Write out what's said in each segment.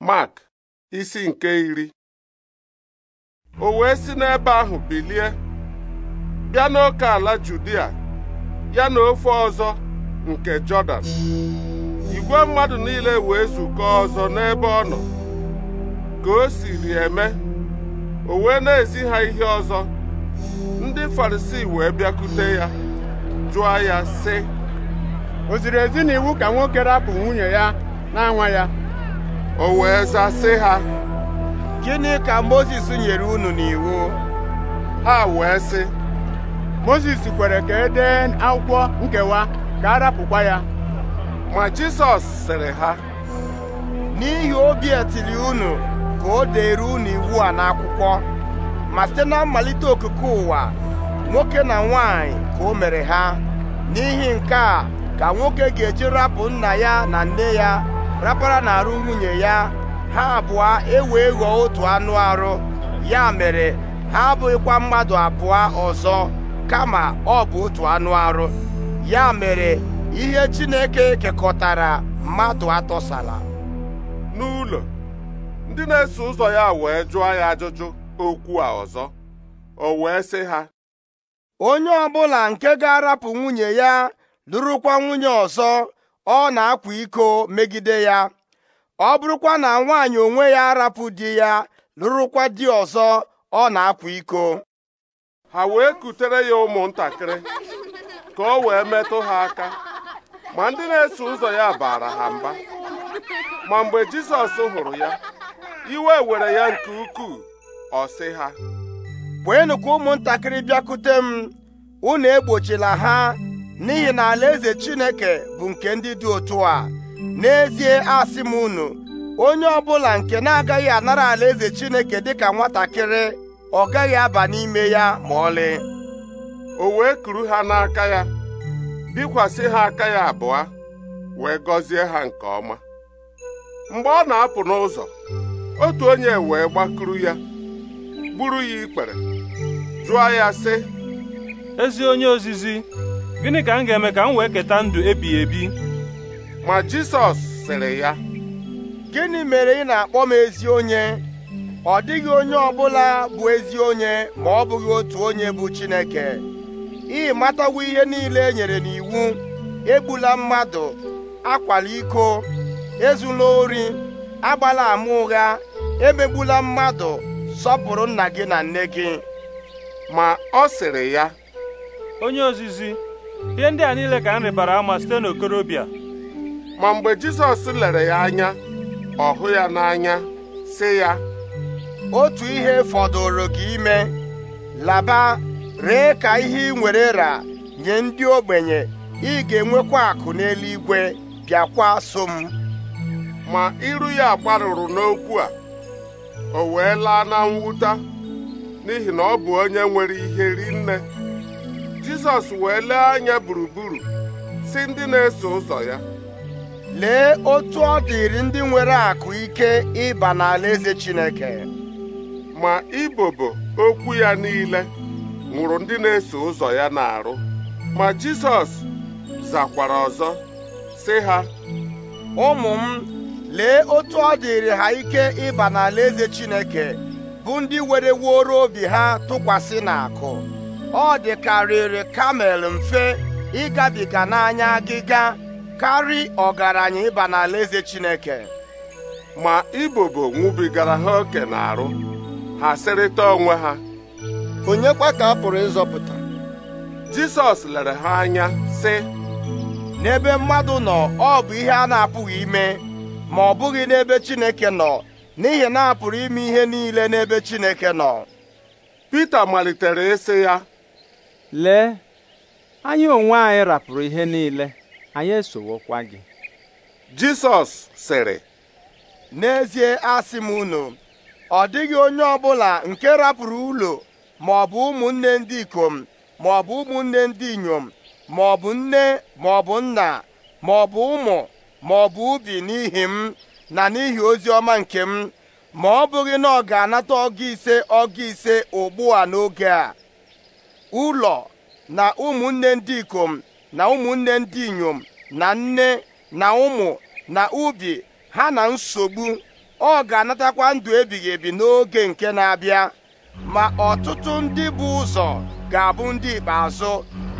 Mark isi nke iri o wee si n'ebe ahụ bilie bịa n'oke ala Judia ya na ofe ọzọ nke Jọdan igwe mmadụ niile wee zukọọ ọzọ n'ebe ọ nọ ka o siri eme o wee na-ezi ha ihe ọzọ ndị Farisii wee bịakute ya jụọ ya sị o ziri ezi iwu ka nwoke rapụ nwunye ya na-anwa ya o wee zaa ha gịnị ka mozis nyere unu n'iwu ha wee sị mozis kwere ka e dee akwụkwọ nkewa ka a rapụkwa ya ma jisọs sịrị ha n'ihi obi etiri unu ka o deere unu iwu a n'akwụkwọ ma site na mmalite okike ụwa nwoke na nwanyị ka o mere ha n'ihi nke a ka nwoke ga-eji rapụ nna ya na nne ya rapara na-arụ nwunye ya ha abụọ ewee ghọọ otu anụ arụ ya mere ha abụghịkwa mmadụ abụọ ọzọ kama ọ bụ otu anụ arụ ya mere ihe Chineke kekọtara mmadụ atọsala n'ụlọ ndị na-eso ụzọ ya wee jụọ ya ajụjụ okwu a ọzọ o wee sị ha onye ọbụla nke ga-arapụ nwunye ya lụrụkwa nwunye ọzọ ọ na-akwa iko megide ya ọ bụrụkwa na nwaanyị onwe ya arapụ di ya lụrụkwa di ọzọ ọ na-akwa iko ha wee kutere ya ụmụntakịrị ka o wee metụ ha aka ma ndị na-eso ụzọ ya baara ha mba ma mgbe Jizọs hụrụ ya iwe were ya nke ukwuu ọ sị ha kwenụ ka ụmụntakịrị bịakute m unu egbochila ha n'ihi na alaeze Chineke bụ nke ndị dị otu a n'ezie asị m unu onye ọbụla nke na-agaghị anara alaeze Chineke dị ka nwatakịrị ọ gaghị aba n'ime ya ma ọlị o wee kuru ha n'aka ya bikwasị ha aka ya abụọ wee gọzie ha nke ọma mgbe ọ na-apụ n'ụzọ otu onye wee gbakuru ya gburu ya ikpere jụọ ya sị ezi onye ozizi gịnị ka m ga-eme ka m wee keta ndụ ebighị ebi ma Jisọs sịrị ya gịnị mere ị na-akpọ m ezi onye ọ dịghị onye ọbụla bụ ezi onye ma ọ bụghị otu onye bụ Chineke ị matagwo ihe niile e nyere n'iwu egbula mmadụ akwala iko ezula ori agbala ama ụgha emegbula mmadụ sọpụrụ nna gị na nne gị ma ọ sịrị ya onye ozizi ihe ndị a niile ka m rịbara ama site n'okorobịa ma mgbe Jizọs lere ya anya ọ hụ ya n'anya sị ya otu ihe fọdụrụ gị ime laba ree ka ihe ị nwere ra nye ndị ogbenye ị ga-enwekwa akụ n'eluigwe bịakwa so m ma iru ya gbarụrụ n'okwu a o wee laa na n'ihi na ọ bụ onye nwere ihe rinne jizọs wee lee anya gburugburu si ndị na-eso ụzọ ya lee otu ọ dịrị ndị nwere akụ ike ịba n'alaeze Chineke ma ibobo okwu ya niile nwụrụ ndị na-eso ụzọ ya na-arụ ma Jizọs zakwara ọzọ si ha ụmụ m lee otu ọ dịrị ha ike ịba n'alaeze Chineke bụ ndị were wuoro obi ha tụkwasị n'akụ ọ dịkarịrị kamel mfe ịgabiga n'anya agịga karị ọgaranya ịba nala eze Chineke ma ibobo nwubigara ha oke na-arụ ha sịrịta onwe ha onye kwa ka a pụrụ ịzọpụta Jisọs lere ha anya sị n'ebe mmadụ nọ ọ bụ ihe a na-apụghị ime ma ọ bụghị n'ebe Chineke nọ n'ihi na a ime ihe niile n'ebe Chineke nọ Pita malitere ịsị ya lee anyị onwe anyị rapụrụ ihe niile anyị esowokwa gị Jisọs sịrị n'ezie asị m unu ọ dịghị onye ọbụla nke rapụrụ ụlọ ma ọ bụ ụmụnne ndị ikom ma ọ bụ ụmụnne ndị inyom ma ọ bụ nne ma ọ bụ nna ma ọ bụ ụmụ ma ọ ubi n'ihi m na n'ihi ozi ọma nke m ma ọ bụghị na ọ ga-anata ọgụ ise ọgụ ise ugbu a n'oge a ụlọ na ụmụnne ndị ikom na ụmụnne ndị inyom na nne na ụmụ na ubi ha na nsogbu ọ ga-anatakwa ndụ ebighị ebi n'oge nke na-abịa ma ọtụtụ ndị bụ ụzọ ga-abụ ndị ikpeazụ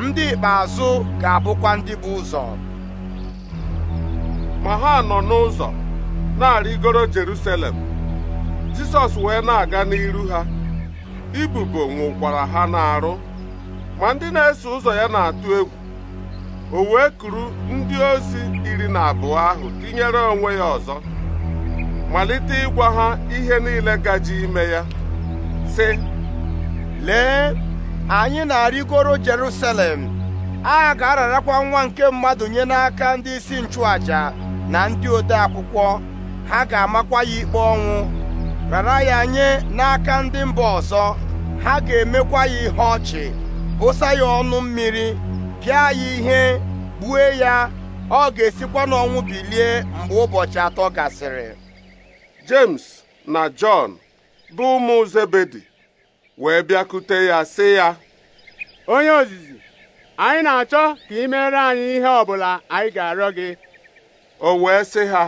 ndị ikpeazụ ga-abụkwa ndị bụ ụzọ ma ha nọ n'ụzọ na-arịgoro Jerusalem Jisọs wee na-aga n'iru ha ibubo nwụkwara ha n'arụ ma ndị na-eso ụzọ ya na-atụ egwu o wee kuru ndị ozi iri na abụọ ahụ tinyere onwe ya ọzọ malite ịgwa ha ihe niile gaji ime ya sị lee anyị na-arịgoro Jerusalem a ga-ararakwa nwa nke mmadụ nye n'aka ndị isi nchụaja na ndị ode akwụkwọ ha ga-amakwa ya ikpe ọnwụ rara ya nye n'aka ndị mba ọzọ ha ga-emekwa ya ihe ọchị wụsa ya ọnụ mmiri pịa ya ihe gbue ya ọ ga-esikwa n'ọnwụ bilie mgbe ụbọchị atọ gasịrị James na Jọn bụ ụmụ Zebedi wee bịakute ya sị ya onye ozizi anyị na-achọ ka ị mere anyị ihe ọbụla anyị ga-arịọ gị o wee sị ha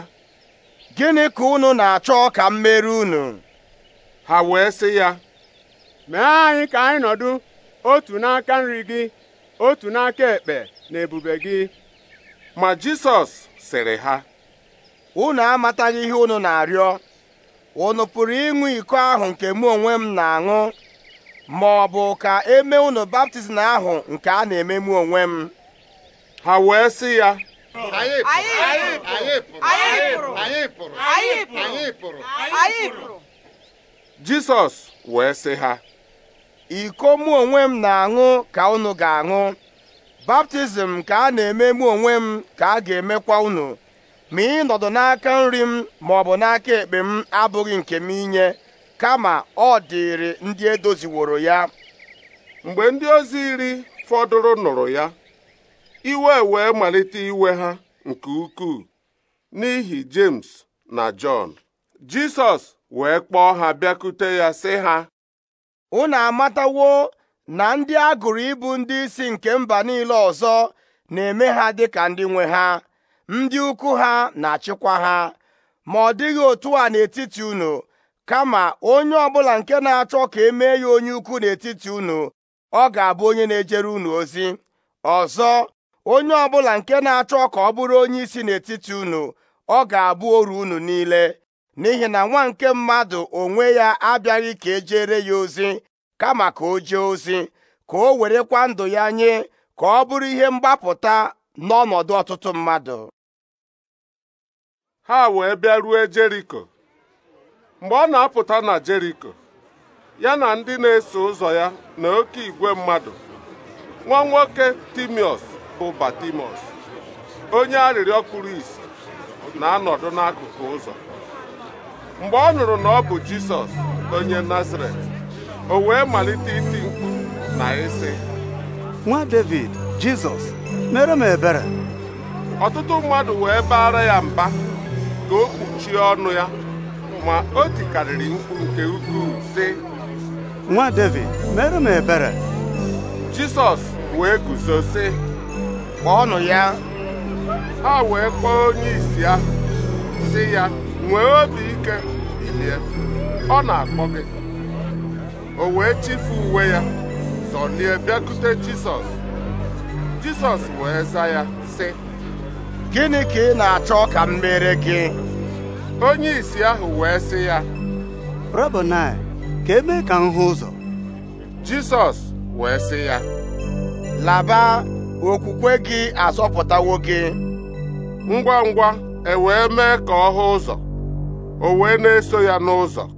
gịnị ka unu na-achọ ka m mere unu ha wee sị ya mee anyị ka anyị nọdụ otu n'aka nri gị otu n'aka ekpe na ebube gị ma Jisọs sịrị ha unu amataghị ihe unu na-arịọ unu pụrụ ịṅụ iko ahụ nke mụ onwe m na-aṅụ ma ọ bụ ka eme unu baptizim ahụ nke a na-eme mụ onwe m ha wee sị ya Jisọs wee sị ha iko mụ onwe m na-aṅụ ka unu ga-aṅụ baptizim ka a na-eme mụ onwe m ka a ga-emekwa unu ma ị nọdụ n'aka nri m ma ọ bụ n'aka ekpe m abụghị nke m inye kama ọ dịịrị ndị edoziworo ya mgbe ndị ozi iri fọdụrụ nụrụ ya iwe wee malite iwe ha nke ukwuu n'ihi James na Jọn Jisọs wee kpọọ ha bịakute ya sị ha unu amatawo na ndị a gụrụ ịbụ ndị isi nke mba niile ọzọ na-eme ha dị ka ndị nwe ha ndị ukwu ha na-achịkwa ha ma ọ dịghị otu a n'etiti unu kama onye ọbụla nke na-achọ ka emee ya onye ukwu n'etiti unu ọ ga-abụ onye na-ejere unu ozi ọzọ onye ọbụla nke na-achọ ka ọ bụrụ onye isi n'etiti unu ọ ga-abụ oru unu niile n'ihi na nwa nke mmadụ onwe ya abịaghị ka ejere ya ozi kama ka o jee ozi ka o werekwa ndụ ya nye ka ọ bụrụ ihe mgbapụta n'ọnọdụ ọtụtụ mmadụ ha wee bịa ruo Jeriko mgbe ọ na-apụta na Jeriko ya na ndị na-eso ụzọ ya na oke igwe mmadụ nwa nwoke Timiọs bụ Batimọs onye arịrịọ kpuru ìsì na-anọdụ n'akụkụ ụzọ mgbe ọ nụrụ na ọ bụ Jisọs onye Nazaret o wee malite iti mkpu na ịsị nwa David Jizọs mere m ebere ọtụtụ mmadụ wee baara ya mba ka o kpuchie ọnụ ya ma o tikarịrị mkpu nke ukwuu sị nwa David mere m ebere Jisọs wee guzo sị kpọọnụ ya ha wee kpọọ onye isi ya sị ya nwee obi ike ilie ọ na-akpọ gị o wee chifu uwe ya zọlie bịakute Jisọs Jisọs wee za ya sị gịnị ka ị na-achọ ka m mere gị onye isi ahụ wee sị ya Rabonai ka eme ka m hụ ụzọ Jisọs wee sị ya laba okwukwe gị azọpụtawo gị ngwa ngwa e wee mee ka ọ hụ ụzọ o wee na-eso ya n'ụzọ